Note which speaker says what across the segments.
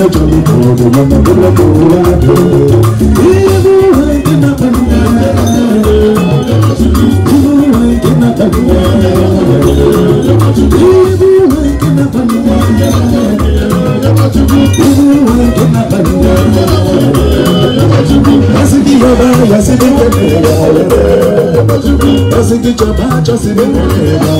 Speaker 1: na joli ko do na ko na ko ya do ibu hai na na na na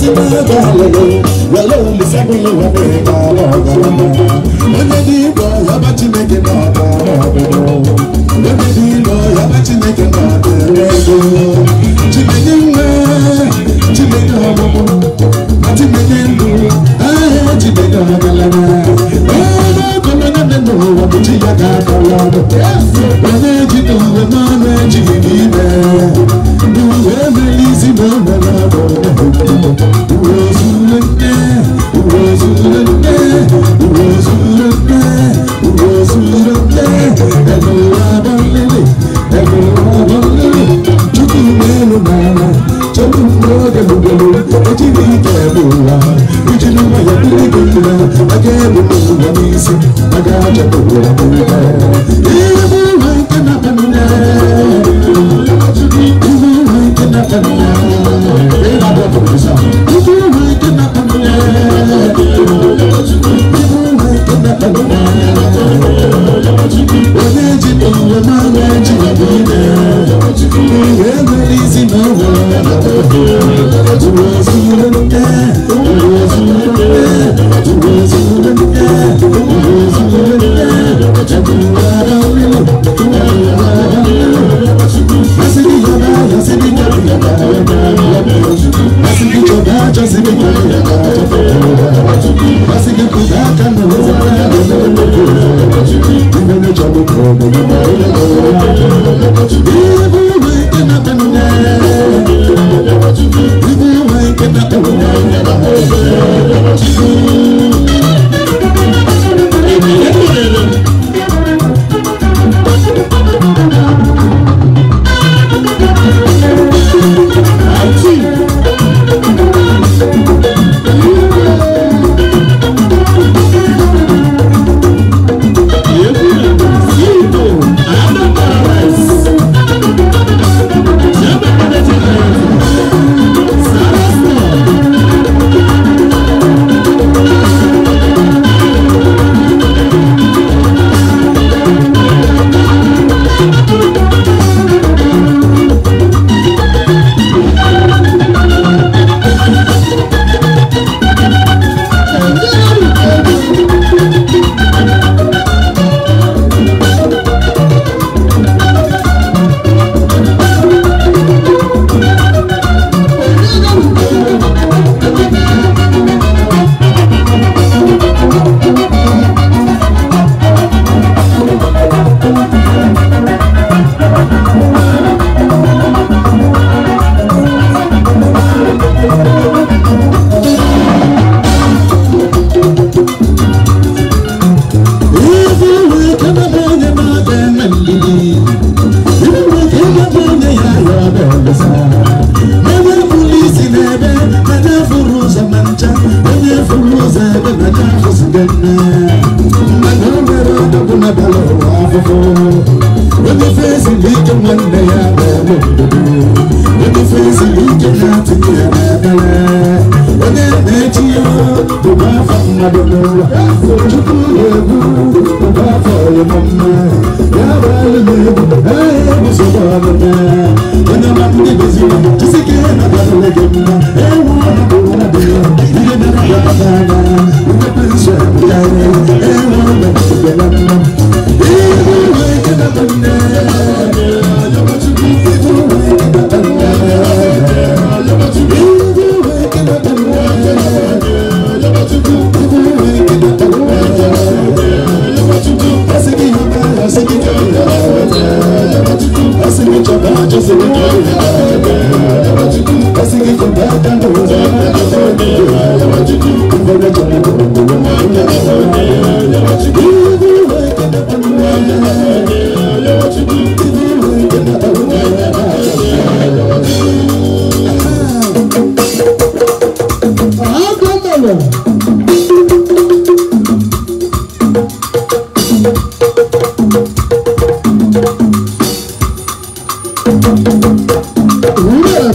Speaker 1: ti bẹ́ẹ̀ bá lọ́lọ́ lọ́lọ́ mi sẹ́gun ló wà bẹ́ẹ̀ bá lọ́gàrà onye dị ịlọ ya bụ Chineke na-abịa ọbụbọ onye dị ịlọ ya bụ Chineke na-abịa ego Chineke nwe Chineke ọmụmụ na Chineke nlu ahịa Chineke agalana ebe ego onye dị n'ụwa bụ chi ya ga-abala onye ji n'ụwa n'ọnụ ejighị n'ime na na na na chance de adịghị chukwu na-egwu mgbe afọ ịmụmme ya bụ alụm egwu ahịa egwu sokwa ọmụme onye ma ndị goziri chisike ihe na-abalị gị mma ewu ọnụ bụ nwa dị ihe na-abata anya ndị pensụl ya Iya,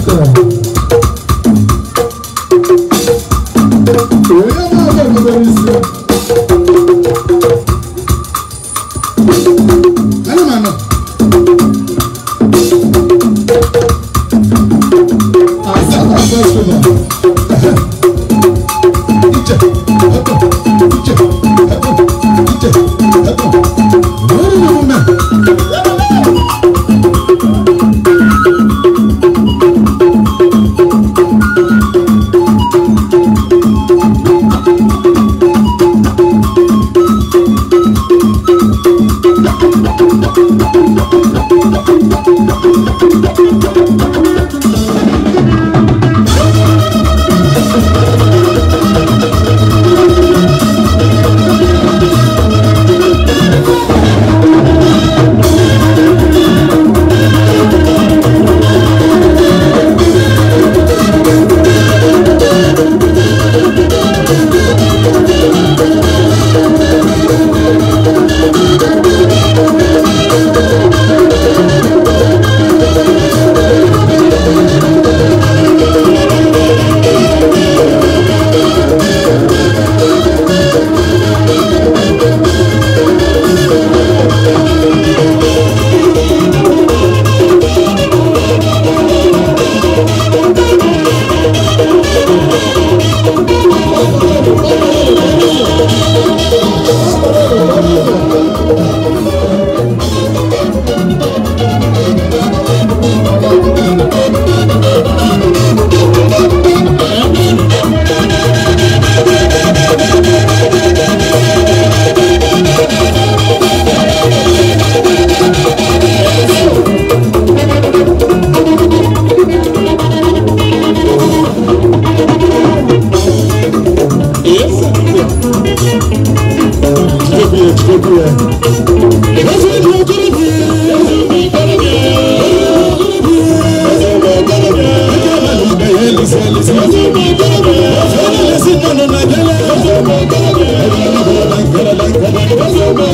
Speaker 1: Make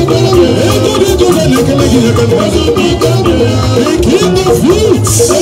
Speaker 1: it the fruits.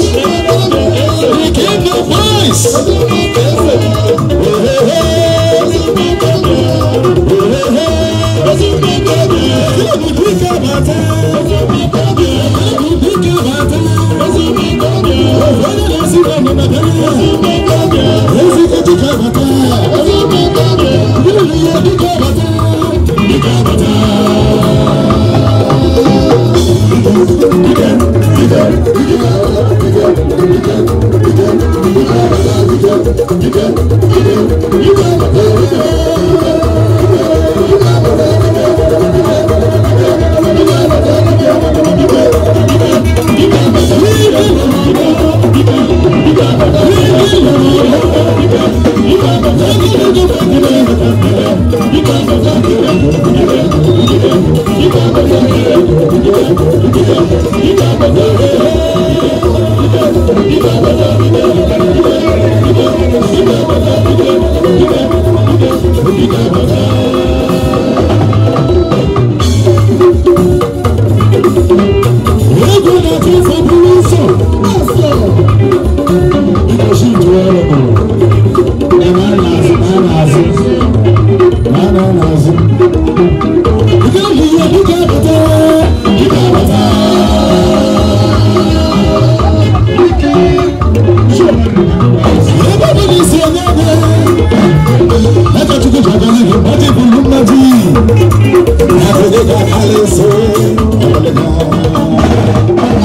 Speaker 1: Thank you. Thank you.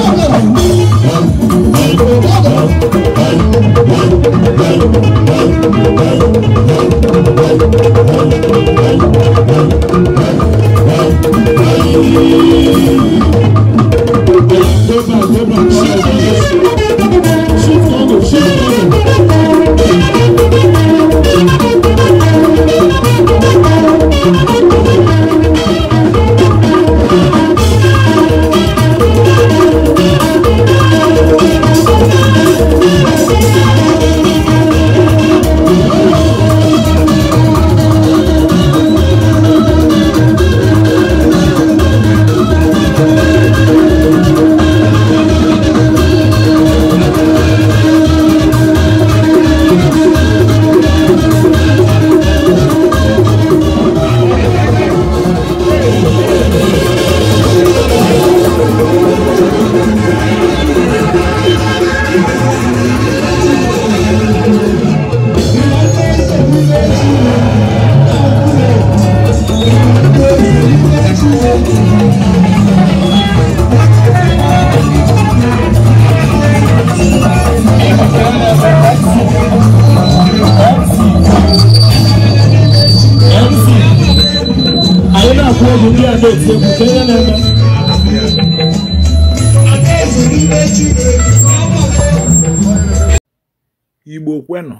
Speaker 1: na ndị ihe eme
Speaker 2: igbo kwenụ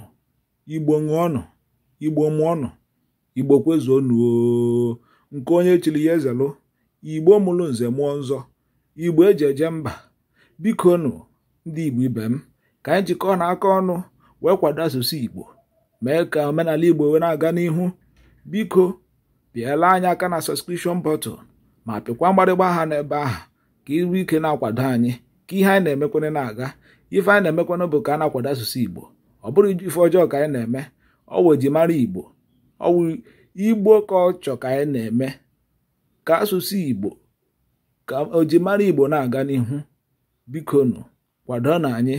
Speaker 2: igbo ṅụọnụ igbo mụọnụ igbo kwezuonụ nke onye chiri ya ezelụ igbo mụrụ nze mụọ nzọ igbo eji eje mba biko nụ ndị igbo ibe m ka anyị jikọọ na aka ọnụ wee kwado asụsụ igbo mee ka omenala igbo wee na-aga n'ihu biko bịala anyị aka na sọskrishọn bọtụl ma pịkwa mgbarịgba aha n'ebe ahụ ka iru ike na-akwado anyị ka ihe anyị na-emekwana na-aga ife anyị na-emekwana bụ ka a na-akwado asụsụ igbo ọ bụrụ ife ọjọọ ka anyị na-eme ọwụ ejimara igbo ọwụ igbo ka ọ chọ ka anyị na-eme ka asụsụ igbo ka ojimara igbo na-aga n'ihu bikonu kwado na anyị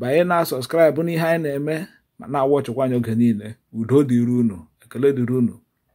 Speaker 2: banye na sọskraịbụ n'ihe anyị na-eme ma na-awọchịkwa anyị oge niile udo dịrị unu ekele dịrị unu